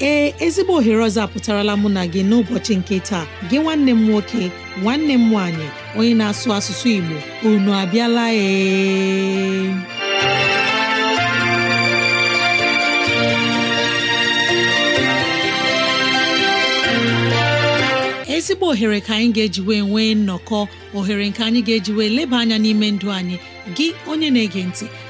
ee ezigbo ohere ọzọ apụtarala mụ na gị n'ụbọchị nke taa gị nwanne m nwoke nwanne m nwanyị, onye na-asụ asụsụ Igbo unu abịala ee ezigbo ohere ka anyị ga-ejiwe nwee nnọkọ ohere nke anyị ga-ejiwe eji leba anya n'ime ndụ anyị gị onye na-ege ntị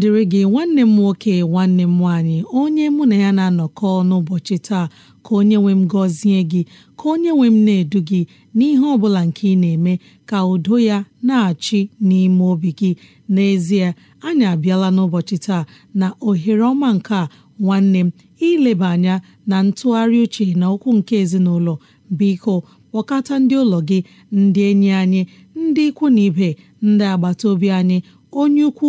dịrị gị nwanne m nwoke nwanne m nwaanyị onye mụ na ya na-anọkọ n'ụbọchị taa ka onye nwe m gọzie gị ka onye nwe m na-edu gị n'ihe ọ bụla nke ị na-eme ka udo ya na-achị n'ime obi gị n'ezie anyị abịala n'ụbọchị taa na ohere ọma nke a nwanne m ileba anya na ntụgharị uche na okwu nke ezinụlọ biko kpọkọta ndị ụlọ gị ndị enyi anyị ndị ikwu na ibe ndị agbata obi anyị onye ukwu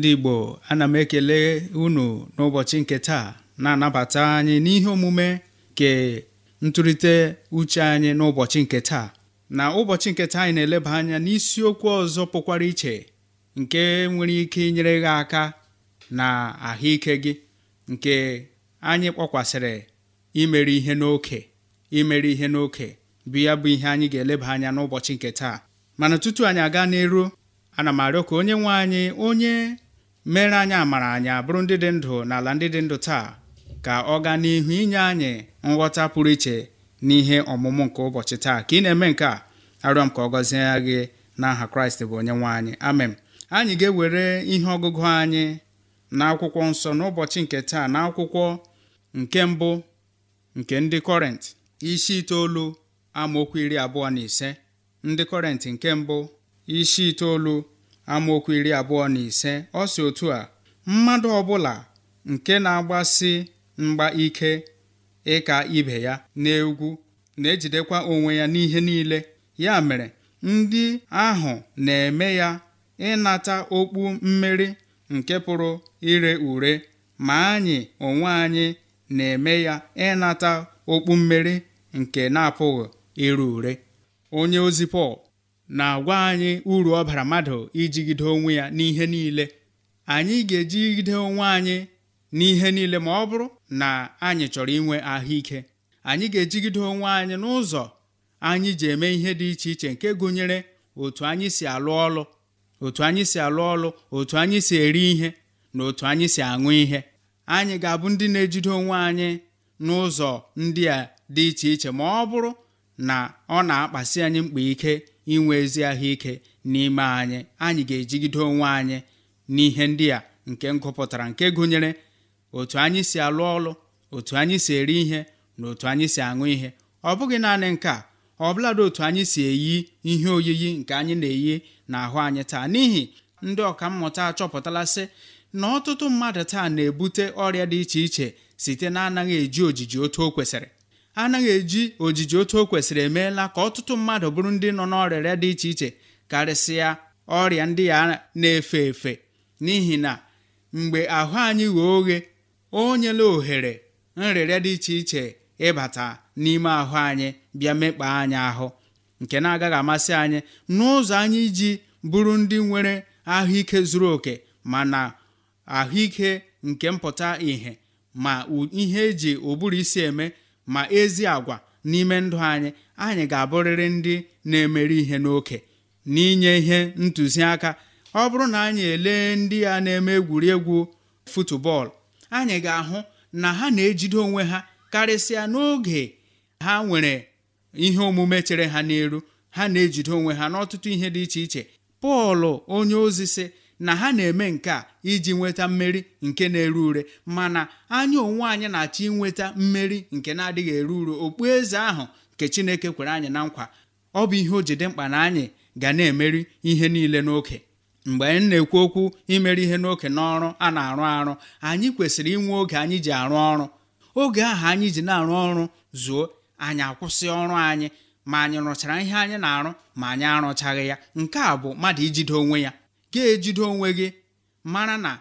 ndị Igbo ana m ekele unu n'ụbọchị nke taa na-anabata anyị n'ihe omume nke ntụrịte uche anyị n'ụbọchị nke taa na ụbọchị nke taa anyị na-eleba anya n'isiokwu ọzọ pụkwara iche nke nwere ike inyere gị aka na ahụike gị nke anyị kpọkwasịrị imere ihe n'oke imere ihe n'oke bụ ya bụ ihe anyị ga-eleba anya n'ụbọchị nke taa mana tutu anyị aga n'eru ana m arịọ ka onye nwe anyị onye mere anyị amara anyị abụrụ ndị dị ndụ n'ala ndị dị ndụ taa ka ọ gaa n'ihu inye anyị nghọta pụrụ iche n'ihe ọmụmụ nke ụbọchị taa ka ị na-eme nke a arịọ m ka ọ gọzie gị n'aha kraịst bụ onye nwe anyị amen anyị ga-ewere ihe ọgụgụ anyị na akwụkwọ nsọ n'ụbọchị nke taa na akwụkwọ nke mbụ nke ndị kọrent isi itoolu amaokwu iri abụọ na ise ndị kọrent nke mbụ isi itoolu amaokwu iri abụọ na ise ọ si otu a mmadụ ọbụla nke na-agbasi mgba ike ịka ibe ya n'egwu na-ejidekwa onwe ya n'ihe niile ya mere ndị ahụ na-eme ya ịnata okpu mmeri nke pụrụ ire ure ma anyị onwe anyị na-eme ya ịnata okpu mmeri nke na-apụghị ire ure onye ozi Pọl na-agwa anyị uru ọ bara mmadụ ijigide onwe ya n'ihe niile anyị ga-ejigide onwe anyị n'ihe niile ma ọ bụrụ na anyị chọrọ inwe ahụike anyị ga-ejigide onwe anyị n'ụzọ anyị ji eme ihe dị iche iche nke gụnyere otu anyị si alụ ọlụ otu anyị si alụ ọlụ otu anyị si eri ihe na otu anyị si aṅụ ihe anyị ga-abụ ndị na-ejide onwe anyị n'ụzọ ndị a dị iche iche ma ọ bụrụ na ọ na-akpasi anyị mkpa ike inwe ezi ahụike n'ime anyị anyị ga-ejigide onwe anyị n'ihe ndị a nke ngụpụtara nke gụnyere otu anyị si alụ ọlụ otu anyị si eri ihe na otu anyị si aṅụ ihe ọ bụghị naanị nke a ọ bụladị otu anyị si eyi ihe oyiyi nke anyị na-eyi n'ahụ anyị taa n'ihi ndị mmụta achọpụtala sị na ọtụtụ mmadụ taa na-ebute ọrịa dị iche iche site na anaghị eji ojiji otu o kwesịrị anaghị eji ojiji otu o kwesịrị emeela ka ọtụtụ mmadụ bụrụ ndị nọ n'ọrịa dị iche iche karịsịa ọrịa ndị ya na-efe efe n'ihi na mgbe ahụ anyị ghee oghe o nyela ohere nrịrịa dị iche iche ịbata n'ime ahụ anyị bịa mekpa anyị ahụ nke na-agaghị amasị anyị n'ụzọ anyị iji bụrụ ndị nwere ahụike zuru oke mana ahụike nke mpụta ìhè ma ihe eji ụbụrụ isi eme ma ezi agwa n'ime ndụ anyị anyị ga-abụrịrị ndị na-emeri ihe n'oke n'inye ihe ntụziaka ọ bụrụ na anyị elee ndị a na-eme egwuregwu futubọọlụ anyị ga-ahụ na ha na-ejide onwe ha karịsịa n'oge ha nwere ihe omume chere ha n'elu ha na-ejide onwe ha n'ọtụtụ ihe dị iche iche Pọl onye ozi sị na ha na-eme nke a iji nweta mmeri nke na ere ure mana anya onwe anyị na-achọ inweta mmeri nke na-adịghị ure okpu eze ahụ nke Chineke kwere anyị na nkwa ọ bụ ihe o jide mkpa na anyị ga na-emeri ihe niile n'oke mgbe anyị na-ekwu okwu imeri ihe n'oke n'ọrụ a na-arụ arụ anyị kwesịrị inwe oge anyị ji arụ ọrụ oge ahụ anyị ji na-arụ ọrụ zuo anyị akwụsị ọrụ anyị ma anyị rụchara ihe anyị na-arụ ma anyị arụchaghị ya nke a bụ mmadụ ijide onwe ya ga-ejide onwe gị mara na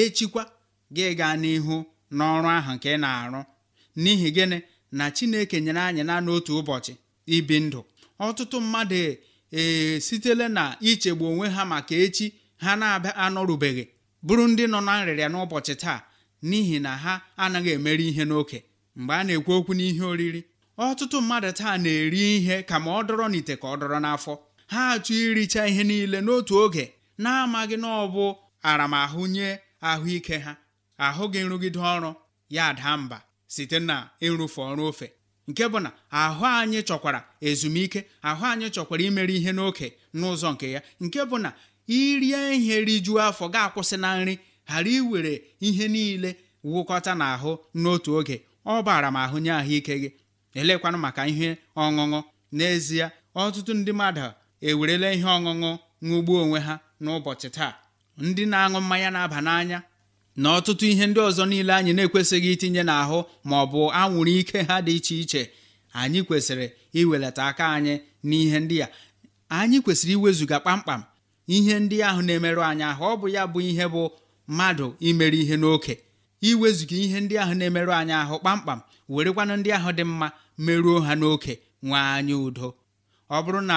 echikwa gị gaa n'ihu n'ọrụ ahụ nke ị na-arụ n'ihi gịnị na Chineke nyere anyị na n'otu ụbọchị ibi ndụ ọtụtụ mmadụ ee na ichegbu onwe ha maka echi ha na-abịa anọrubeghị bụrụ ndị nọ na nrịrịa n'ụbọchị taa n'ihi na ha anaghị emeri ihe n'oke mgbe a na-ekwu okwu n'ihe oriri ọtụtụ mmadụ taa na-eri ihe ka ma ọ dọrọ n'ite ka ọ dọrọ n'afọ ha achọ iricha ihe niile n'otu oge na-amaghị na ọ bụ aramahụ nye ahụike ha ahụ gị nrụgide ọrụ ya daa mba site na ịrụfe ọrụ ofe nke bụ na ahụ anyị chọkwara ezumike ahụ anyị chọkwara imere ihe n'oke n'ụzọ nke ya nke bụ na irie ihe rijuo afọ ga-akwụsị na nri ghara iwere ihe niile wụkọta n'ahụ n'otu oge ọ bụ m ahụ nye ahụike gị elekwanụ maka ihe ọṅụṅụ n'ezie ọtụtụ ndị mmadụ ewerela ihe ọṅụṅụ ṅụgbuo onwe ha n'ụbọchị taa ndị na-aṅụ mmanya na-aba n'anya na ọtụtụ ihe ndị ọzọ niile anyị na-ekwesịghị itinye n'ahụ ma ọ bụ anwụrụ ike ha dị iche iche anyị kwesịrị iwelata aka anyị n'ihe ndị a anyị kwesịrị iwezuga kpamkpam ihe ndị ahụ na-emerụ anyị ahụ ọ bụ ya bụ ihe bụ mmadụ imere ihe n'oke iwezuga ihe ndị ahụ na-emerụ anyị ahụ kpamkpam werekwanụ ndị ahụ dị mma meruo ha n'oke nwee anyị udo ọ bụrụ na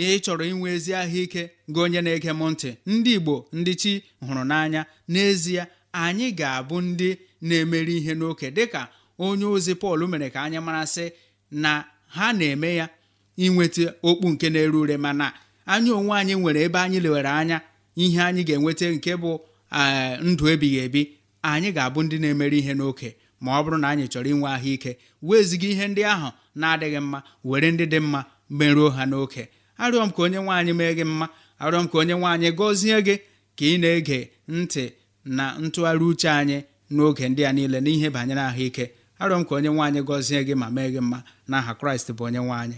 ihe ị chọrọ inwe ezi ahụike gị onye na-ege m ntị ndị Igbo ndị chi hụrụ n'anya n'ezie anyị ga-abụ ndị na-emeri ihe n'oke dịka onye ozi Pọl mere ka anyị marasị na ha na-eme ya inweta okpu nke na-ere ure mana anyị onwe anyị nwere ebe anyị lewere anya ihe anyị ga-enweta nke bụ eh, ndụ ebighị ebi anyị ga-abụ ndị na-emeri ihe n'oke ma ọ bụrụ na anyị chọrọ inwe ahụike weziga ihe ndị ahụ na-adịghị mma were ndị dị mma merụọ ha n'oke arịọ m ka onye nwaanyị mee gị mma arịọ m ka onye nwaanyị gọzie gị ka ị na-ege ntị na ntụgharị uche anyị n'oge ndị a niile n'ihe banyere ahụike arịọ m ka onye nwaanyị gọzie gị ma mee gị mma n'aha kraịst bụ onye nwaanyị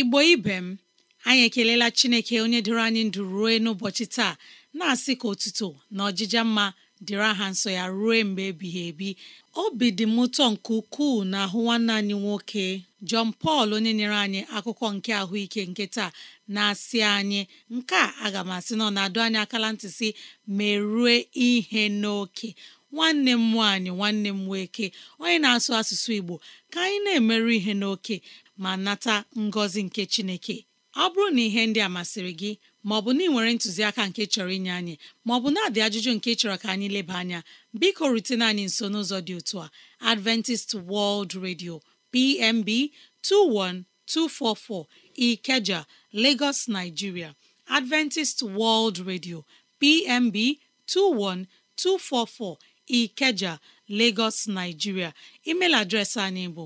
igbo ibe m anyị ekelela chineke onye dịrị anyị ndụ ruo n'ụbọchị taa na-asị ka otuto na ọjịja mma dịrị aha nsọ ya ruo mgbe ebighị ebi obi dị m ụtọ nke ukwuu na ahụ nwanne anyị nwoke Jọn Pọl onye nyere anyị akụkọ nke ahụike nke taa na-asị anyị nke a aga m asị na na-adụ anyị akala ntị si merue ihe n'oke nwanne m nwaanyị nwanne m nwoke onye na-asụ asụsụ Igbo ka anyị na-emerụ ihe n'oke ma nata ngọzi nke chineke ọ bụrụ na ihe ndị a masịrị gị maọbụ na ị nwere ntụziaka nke chọrọ inye anyị maọbụ na-adị ajụjụ nke chọrọ ka anyị leba anya biko rutena anyị nso n'ụzọ dị otu a Adventist World Radio PMB 21244 Ikeja Lagos Nigeria Adventist World Radio PMB 21244 Ikeja Lagos Nigeria email adreesị anyị bụ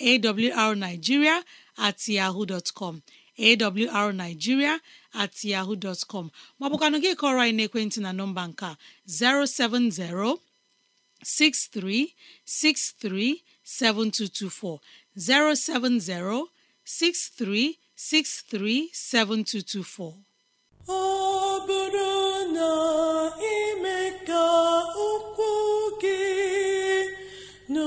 awrnigeria at yahoo dot com awrnigeria at yahoo dot com maọbụkwanụ gị kọrọ anyị n'ekwentị na nọmba nke a 07063637224 07063637224 ọ bụrụ na ime ka okwu gị no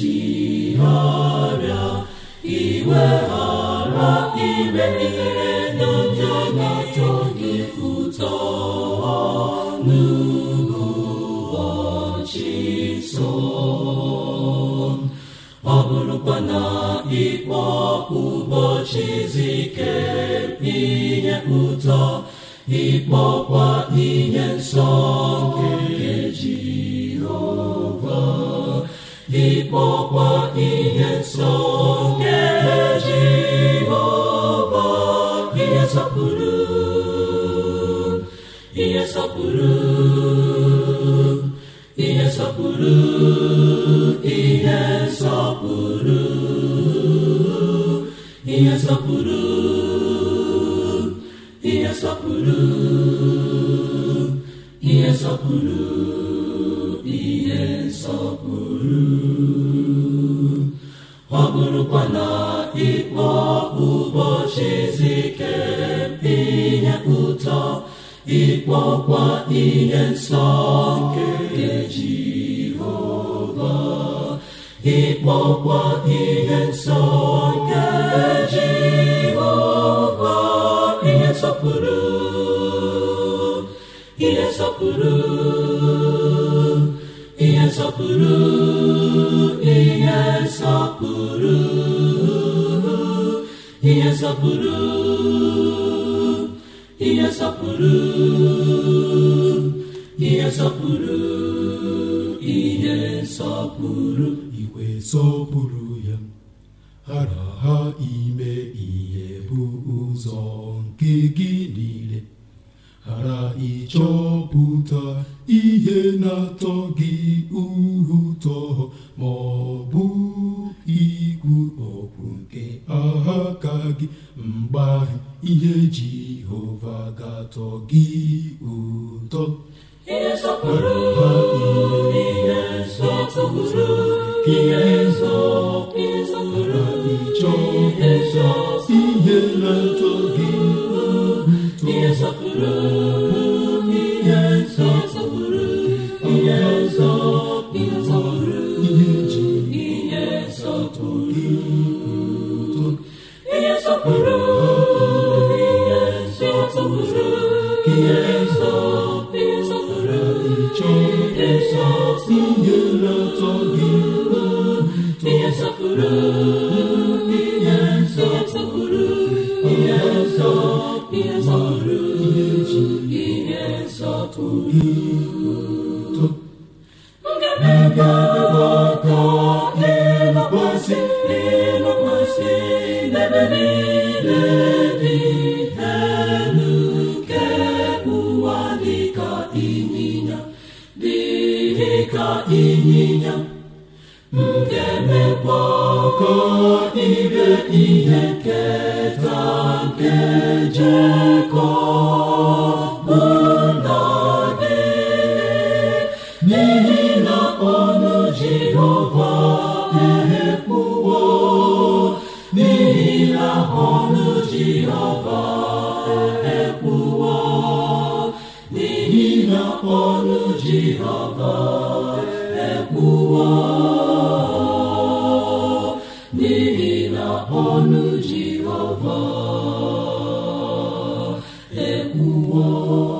chigharịa iweghara ime ihere n'oge na-atọ gị ụtọ n'ụbọchị nsọ ọ bụrụkwa na ịkpọ ụbọchị izu ike ihe ụtọ ịkpọkwa ihe nsọ nke ịkpọkwa ihe nsọ nke Jehova ihe nsọpụrụ ihe nsọpụrụ ihe nsọpụrụ ihe sọpụrụ ihe nsọpụrụ ihe nsọpụrụ ihe sọpụrụ bụrụkwa na ịkpọ ụbọchị izu ike ihe ụtọ ịkpọkwa ihe nsọ nke Jehova ịkpọkwa ihe nsọ nke Jehova ihe nsọpụrụ ihe nsọpụrụ nsọpụrụ ihe nsọpụrụ ihe nsọpụrụ ihe nsọpụrụ ihe nsọpụrụ ihe nsọpụrụ igwe sọpụrụ ya hara ha ime ihe bụ ụzọ nke gị niile hara ịchọpụta ihe na-atọ gị ụtọ ma ọ bụ igwu ọgwụ nke ka gị mgbe ahụ ihe Jehova ga-atọ gị ụtọ ihe nsọpụrụ ihe ịchọ ụzọ ihe na-atọ gị ụtọ ihe. Oh.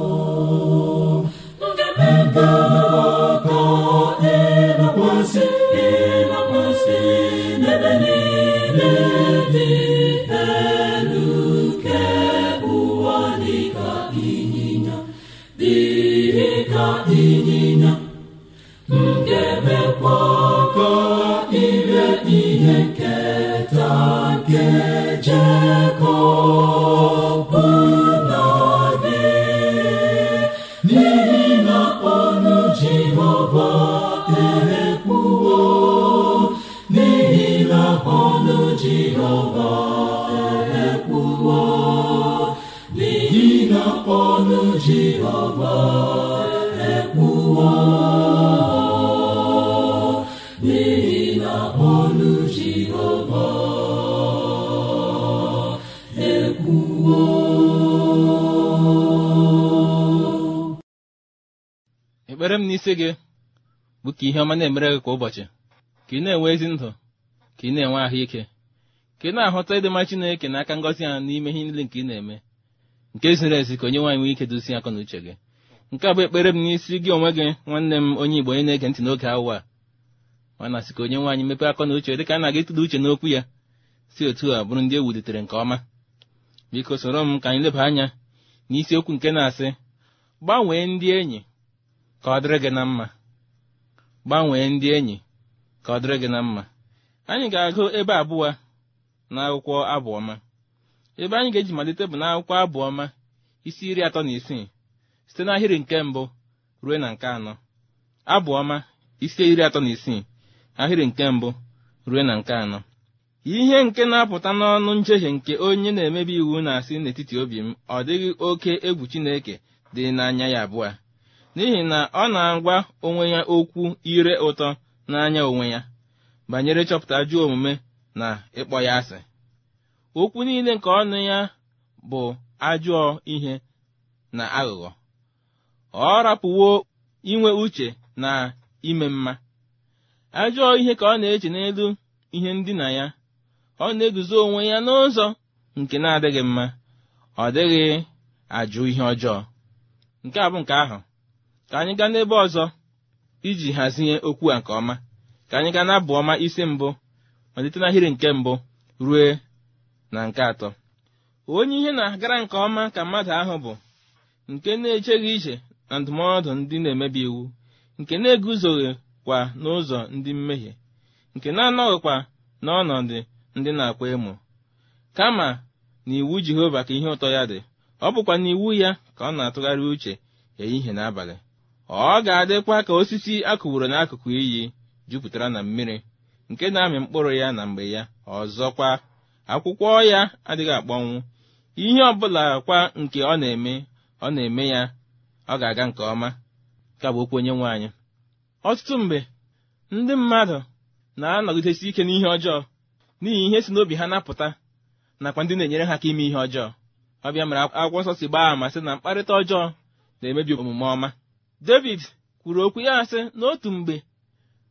m n'isi gị bụ ka ihe ọma na-emere gị kwa ụbọchị ka ị na-enwe ezi ndụ ka ị na-enwe ahụike ka ị na-ahụta ịdịmma Chineke n'aka ngọzi ya n'ime ihe niile nke ị na-eme nke ziri ezi ka onye nwaanyị nwee ike dozie akọ na uche gị nke a bụ ekpere m n'isi gị onwe gị nwanne m onye Igbo onye na-ege ntị n'oge awa ma na ka onye nwaanyị mepee akọ na uche dịka a na-aga ịtụda uche n'okwu ya si otu a bụrụ ndị e wulitere nke ọma biko soro m ka anyị leba anya n'isiokwu nke na-asị gbanwee ndị enyi ka ọ dịrị gị na mma gbanwee ndị enyi ka ọ dịrị gị na mma anyị ga-agụ ebe abụọ na akwụkwọ abụọma ebe anyị ga-eji malite bụ n'akwụkwọ abụọma isi iri atọ na isii site n'ahịrị nke mbụ ruo na nke anọ abụọma isi iri atọ na isii ahịrị nke mbụ ruo na nke anọ ihe nke na-apụta n'ọnụ njehie nke onye na-emebi iwu na-asị n'etiti obi m ọ dịghị oke egwu Chineke dị n'anya ya abụọ n'ihi na ọ na-agwa onwe ya okwu ire ụtọ n'anya onwe ya banyere chọpụta ajụọ omume na ịkpọ ya asị okwu niile nke ọnụ ya bụ ajụọ ihe na aghụghọ ọ rapụwo inwe uche na ime mma Ajụọ ihe ka ọ na-eche n'elu ihe ndina ya ọ na-eguzo onwe ya n'ụzọ nke na-adịghị mma ọ dịghị ajụ ihe ọjọọ nke a bụ nke ahụ ka anyị gaa n'ebe ọzọ iji hazie okwu a nke ọma ka anyị gaa n'abụ ọma isi mbụ malite n'ahịrị nke mbụ rue na nke atọ onye ihe na-agara nke ọma ka mmadụ ahụ bụ nke na-echeghị iche na ndụmọdụ ndị na-emebi iwu nke na-eguzoghị kwa n'ụzọ ndị mmehie nke na-anọghịkwa n'ọnọdụ ndị na-akwa emo kama na iwu Jehova ka ihe ụtọ ya dị ọ bụkwa n'iwu iwu ya ka ọ na-atụgharị uche ehihie n'abalị. ọ ga-adịkwa ka osisi a n'akụkụ iyi jupụtara na mmiri nke na-amị mkpụrụ ya na mgbe ya ọzọkwa akwụkwọ ya adịghị akpọnwụ ihe ọ bụla kwa nke ọ na-eme ọ na-eme ya ọ ga-aga nke ọma ka bụ okwu onye anyị ọtụtụ mgbe ndị mmadụ na-anọgidesi ike n'ihe ọjọọ n'ihi ihe si n'obi ha napụta nakwa ndị na-enyere ha aka ime ihe ọjọọ ọbịa mere akwụkwọ nsọ si gbaa ma sị na mkparịta ọjọọ na-emebi omume ọma David kwuru okwu ya asị n'otu mgbe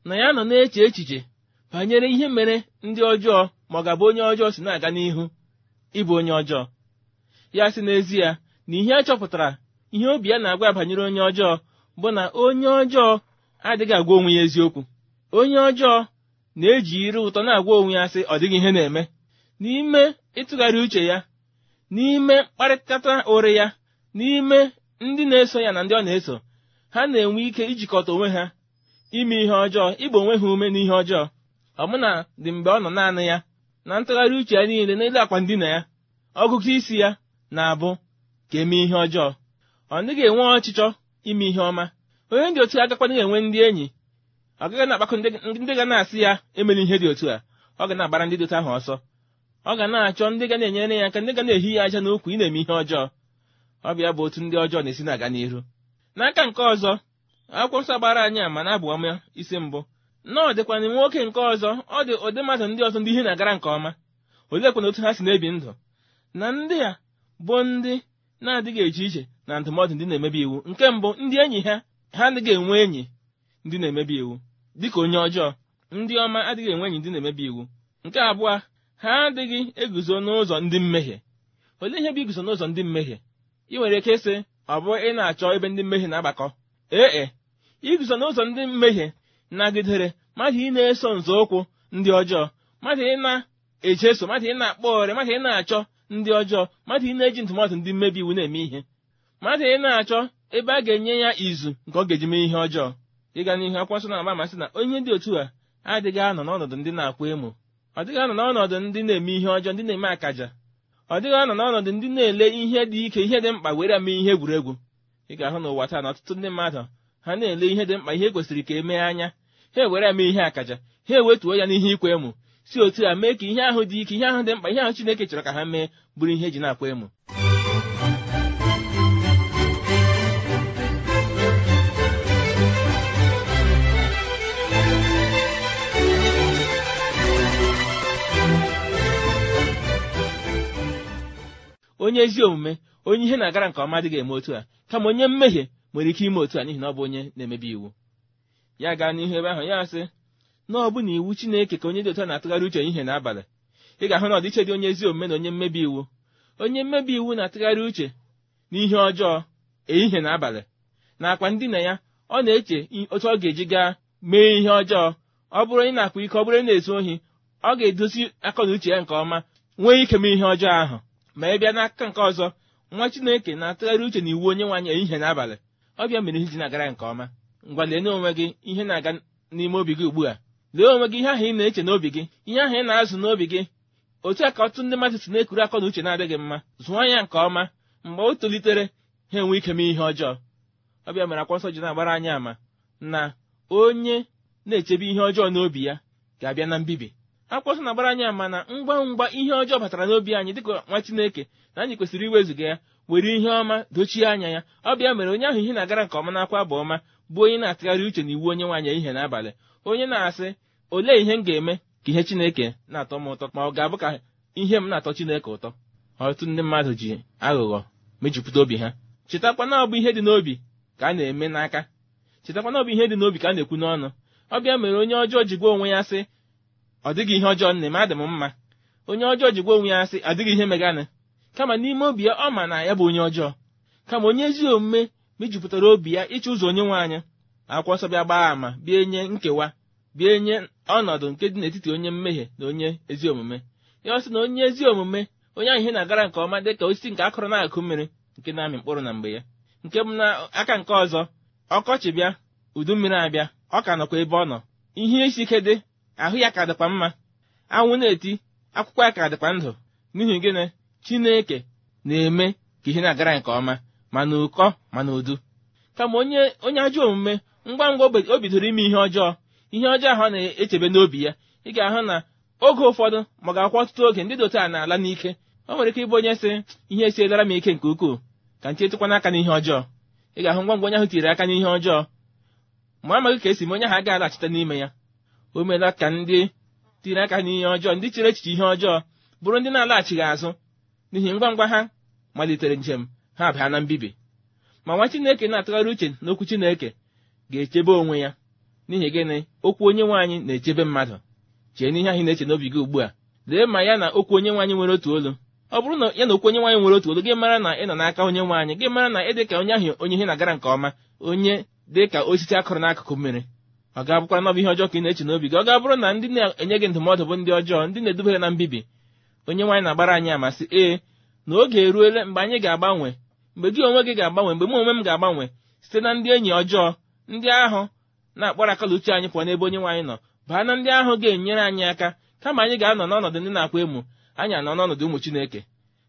na ya nọ na-eche echiche banyere ihe mere ndị ọjọọ ma ọ gabụ onye ọjọọ si na-aga n'ihu ịbụ onye ọjọọ ya sị n'ezie na ihe a chọpụtara ihe obi ya na-agwa banyere onye ọjọọ bụ na onye ọjọọ adịghị agwa onwe ya eziokwu onye ọjọọ na-eji iri ụtọ na-agwa onwe ya sị ọ dịghị ihe na-eme n'ime ịtụgharị uche ya n'ime mkparịta ụrị ya n'ime ndị na-eso ya na ndị ọ na-eso ha na-enwe ike ijikọta onwe ha ime ihe ọjọọ ịgba onwe ha ume n'ihe ọjọọ na dị mgbe ọ nọ naanị ya na ntụgharị uche ya niile n'elu akwa ndina ya ọgụgụ isi ya na-abụ ka eme ihe ọjọọ ọ dịghị enwe ọchịchọ ime ihe ọma onye dị otu agakwana enwe ndị enyi ọ gaghị na-akpakọ ndị ga na-asị ya emela ihe dị otu a ọ ga na-agbara ndị dịta ahụ ọsọ ọ ga na-achọ ndị ga na-enyere ya aka ndị ga na-ehi ya aja n'ukwu ị na-eme ihe ọjọọ ọbịa bụ otu ndị ọjọọ na-esi na-aga n'iru n'aka nke ọzọ akwụkwọ nsọ gbara anyị ama na abụ ọma isi mbụ na dịkwana nwoke nke ọzọ ọ dị ụdị mmadụ ndị ọzọ ndị ihe na-agara nke ọma oleekwana otu ha si na-ebi ndụ na ndị a bụ ndị na-adịghị eche iche na ndụmọdụ ndị na-emebi iwu nke mbụ ndị enyi ha ha adịghị enwe enyi ndị na-emebi iwu dịka onye ọjọọ ndị ọma adịghị enwe enyi ndị na-emebi iwu nke abụọ ha adịghị eguzo n'ụzọ ndị mmehie olee ihe bụ iguzo n'ụzọ ndị mmehie ị nwere ike sị ọ bụ ị na-achọ ebe ndị mmehie na-agbakọ ee e. iguzo n'ụzọ ndị mmehie nagidere mmadụ ị na-eso nzọụkwụ ndị ọjọọ mmadụ ị na-echeso mmadụ ị na-akpọ ọrịa mmadụ ị na-achọ ndị ọjọọ mmadụ ị na-eji ntụmatụ ndị mmebi iwu na-eme ihe mmadụ ị na-achọ ebe a ga-enye ya izu nke ọ ga-eji mee ihe ọjọọ ịga n'ihu akwụkwọ nsọ na-agba amasị na onye dị otu a adịghị anọ n'ọnọdụ ndị na-akwa emo ọ dịghị anọ n'ọnọdụ ndị na-eme ihe ọjọọ ndị na-eme akaja ọ dịghị anọ n'ọnọdụ ndị na-ele ihe dị ike ihe dị mkpa were mee ihe egwuregwu ị ga-ahụ n'ụwa taa na ọtụtụ ndị mmadụ ha na-ele ihe dị mkpa ihe kwesịrị ka emee anya ha ewere mee ihe akaja ha ewetuo ya n'ihe ikwe emo si otu a mee ka ihe ahụ dị ike ihe ahụ dị mkpa ihe ahụ Chineke chọrọ ka ha mee bụrụ ihe eji na-akwa emo. onye ezi omume onye ihe na-agara nke ọma dịghị eme otu a kama onye mmehie nwere ike ime otu a n'ihi na ọ bụ onye na-emebi iwu ya gaa n'ihu ebe ahụ ya sị na ọ bụ na iwu Chineke ka onye dị otu a na-atụgharị uche ihe n'abalị ị ga-ahụ na ọdịiche dị onye ezi omume na onye mmebi iwu onye mmebi iwu na-atụgharị uche n'ihe ọjọọ ehihie na abalị nakwa ndị na ya ọ na-eche otu ọ ga-eji gaa mee ihe ọjọọ ọ bụrụ onye na-akpa ike ọ bụrụ na-ezu ohi ọ ga-edozi akọ na uche ya nke ọma nwee ike mee ihe ọjọọ ahụ ma ị bịa n'aka nke ọzọ nwa chineke na-atụgharị uche na iwu onye nwaanyị ehihie n'abalị ọbịa mere ihe ji na-agara nke ọma ngwa lee n'onwe gị ihe na-aga n'ime obi gị ugbu a lee onwe gị ihe ahụ ị na-eche n'obi gị ihe ahụ ị na-azụ n'obi gị otu a ka ọtụtụ ndị mmadụ si na-ekuru akọ na uche na-adịghị mma zụọ ya nke ọma mgbe o tolitere ha enwe ike ihe ọjọọ ọbịa mere akwụkwọ nsọ ji na-agbara anyị ama na onye na-echebe ihe ọjọọ n'obi ya ga-abịa na mbibi akwụkwọ na-agbara anyị ama na ngwa ngwa ihe ọjọọ batara n'obi anyị dịka nwa Chineke na anyị kwesịrị iwezuga ya were ihe ọma dochie anya ya ọ bịa mere onye ahụ ihe na-agara nke ọma n'akwa bụ ọma bụ onye na-atụgharị uche na iwu onye nwaanyị ihe n'abalị onye na-asị olee ihe m ga-eme ka ihe Chineke na-atọ m ụtọ ma ọ ga-abụ ka ihe m na-atọ Chineke ụtọ ọtụtụ ndị mmadụ ji aghụghọ mejupụta obi ha chetakwa na bụ ihe dị n'obi ka a na-eme n'aka chetakwa na ihe dị n'obi ka a na-ekwu n'ọnụ ọ bịa mere onye ọjọọ ji gwa onwe ya sị ọ dịghị ihe ọjọọ nne m adị m mma onye ọjọọ jikwa onwe ya sị adịghị ihe meganị kama n'ime obi ya ọ ma na ya bụ onye ọjọọ kama onye ezi omume mejupụtara obi ya ịchụ ụzọ onye nwe anyị akwụkwọ nsọ bịa gbaa àmà bịa nye nkewa bịa nye ọnọdụ nke dị n'etiti onye mmehie na onye ezi omume ya ọsị sị na onye ezi omume onye ahụ ihe na-agara nke ọma dị ka osisi nke akụrụ na-akụ mmiri nke na-amị mkpụrụ na mgbe ya nke m na aka nke ọzọ ọkọchị bịa udu mmiri abịa ọ ka nọkwa ebe ọ nọ ihe isi ike dị ahụ ya ka dịkwa mma anwụ na-eti akwụkwọ ya ka dịkwa ndụ n'ihi gịnị chineke na-eme ka ihe na-agara nke ọma ma na ụkọ ma na udu kama onye onye ajọ omume ngwa ngwa o bidoro ime ihe ọjọọ ihe ọjọọ ahụ na-echebe n'obi ya ị ga-ahụ na oge ụfọdụ ma ga-akwụ ọtụtụ oge ndị dote a na-ala n'ike o nwere ike ịbụ onye sị ihe esi esiedara m ike nke ukwuu ka nche etụkwana aka n'ihe ọjọọ ị ga-ahụ ngwa ngwa onye ahụ tiri aka n'ihe ọjọọ ma amaghị ka esi m onye ahụ agaghị alachite n'ime ya o meela ka ndị tiri aka n'ihe ọjọọ ndị chere echiche ihe ọjọọ bụrụ ndị na-alaghachighị azụ n'ihi ngwa ngwa ha malitere njem ha bịa na mbibi ma nwa Chineke na-atụgharị uche n'okwu Chineke ga-echebe onwe ya n'ihi gịnị okwu onye nwaanyị na-echebe mmadụ chee n'ihe anyị na-eche n'obi gị ugbu a lee ma ya na okwu onye nwaanyị nwere otu olu ọ bụrụ na ya na okwu onye nwaanyị nwere otu olu gị mara na ị nọ n'aka onye nwaanyị gị mara na ị dị ka onye ahụ onye ihe na-agara nke ọma onye dị ka osisi akụrụ n'akụkụ mmiri ọ ga-abụkwa n'ọbụ ihe ọjọọ ka ị na-eche n'obi gị ọ ga-abụrụ na ndị na-enye gị ndụmọdụ bụ ndị ọjọọ ndị na-edubere na mbibi onye nwaanyị na-agbara anyị amasị ee na oge eruele mgbe anyị ga-agbanwe mgbe gị onwe gị ga-agbanwe mgbe m onwe m ga-agbanwe site na ndị enyi ọjọọ ndị ahụ na-akpọrọ akala uche anyị pụọ n'ebe onye nwaanyị nọ baa na ndị ahụ ga-enyere anyị aka kama anyị ga-anọ n'ọnọdụ ndị na-akwa emo anyị anọ n'ọnọdụ ụmụ Chineke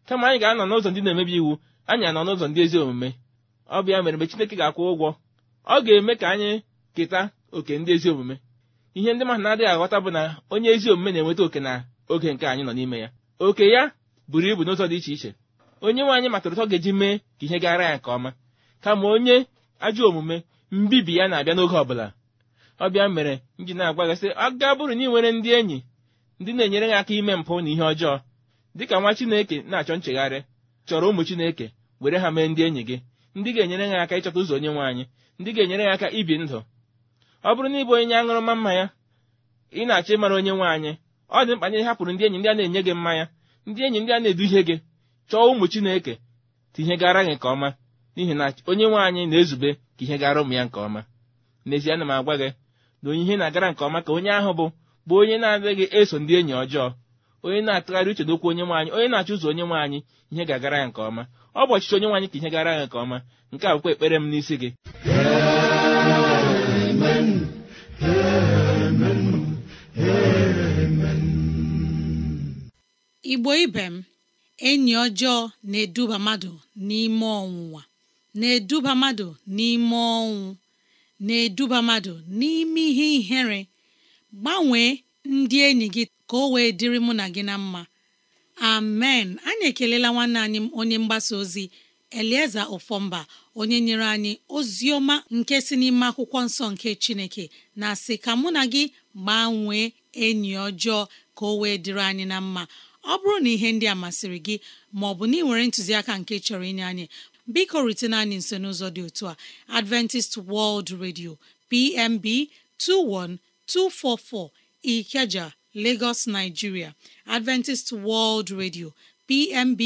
kama anyị ga-anọ n'ụzọ ndị na-emebi iwu anyị anọ n'ụzọ ndị ezi omume ọ mere mgbe Chineke ga-akwụ ụgwọ ọ ga-eme ka anyị keta oke ndị ezi omume ihe ndị mmadụ na-adịghị aghọta bụ na onye ezi omume na-enweta oke na oge nke anyị nọ n'ime ya oke ya buru ibu n'ụzọ dị iche iche onye nwe anyị matụrụ ụtọ ga-eji mee ka ihe gara ya nke ọma kama onye ajọ omume mbibi ya na-abịa n'oge ọbụla ọbịa mere m ji na-agwa gị sị aga bụrụ na ị nwere ndị enyi ndị na-enyere gị aka ime mpụ na ihe ọjọọ dịka nwa Chineke na-achọ nchegharị chọrọ ụmụ Chineke were ha mee ndị enyi gị ndị ga-enyere gị aka ịchọta ụzọ onye nwe anyị ndị ga-enyere gị aka ibi ndụ ọ bụrụ na ịbụ onye aṅụrụma mmanya ị na-achọ ịmara onye nwe anyị ọ dị mkpa na ị hapụrụ ndị enyi ndị a na-enye gị mmanya ndị enyi ndị a na-eduhie gị chọọ ụmụ Chineke tinye gara gị nke ọma n'ihi na onye nwe anyị na-ezube ka ihe gara ụmụ ya nke ọma n'ezie ana m agwa gị na onye ihe na-agara nke ọma ka onye ahụ bụ bụ onye na-adịghị eso ndị enyi ọjọọ onye na-atụgharị uche n'okwu onye nwe anyị onye na-achọ ụzọ onye nwaanyị anyị ihe ga-agara ya nke ọma ọ bụ ọchịchị onye nwe ka ihe gara ya nke ọma nke a bụkwa ekpere m n'isi gị igbo ibe m enyi ọjọọ na-eduba mmadụ n'ime ọnwụnwa na-eduba mmadụ n'ime ọnwụ na-eduba mmadụ n'ime ihe ihere gbanwee ndị enyi gị ka o wee dịrị mụ na gị na mma amen anyị ekelela nwanne anyị onye mgbasa ozi elieze ofọmba onye nyere anyị ozi ọma nke si n'ime akwụkwọ nsọ nke chineke na sị ka mụ na gị gbanwee enyi ọjọọ ka o wee dịrị anyị na mma ọ bụrụ na ihe ndị a masịrị gị ma ọ bụ na ị nwere ntụziaka nke chọrọ inye anyị biko rutene anyị nso n'ụzọ dị otu a Adventist World Radio PMB 21244 Ikeja Lagos Nigeria Adventist World Radio PMB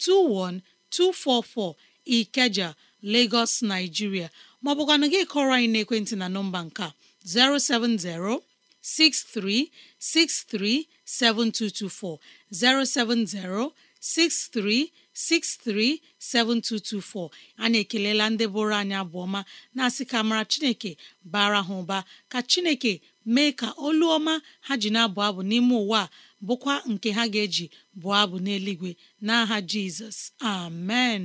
21244 Ikeja Lagos Nigeria ma ọ bụkwanụ gị kọrọ anyị n'ekwentị na nọmba nka 070 6363 7224 a na anyị ekelela ndị bụrụ anyị abụọma na-asị ka mara Chineke bara ha ụba ka Chineke mee ka olu ọma ha ji na-abụ abụ n'ime ụwa a bụkwa nke ha ga-eji bụọ abụ n'eluigwe n'aha Jizọs amen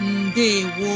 mbe gwo